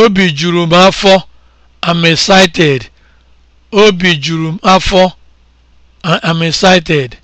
Obi juru m afọ. I'm m I'm excited.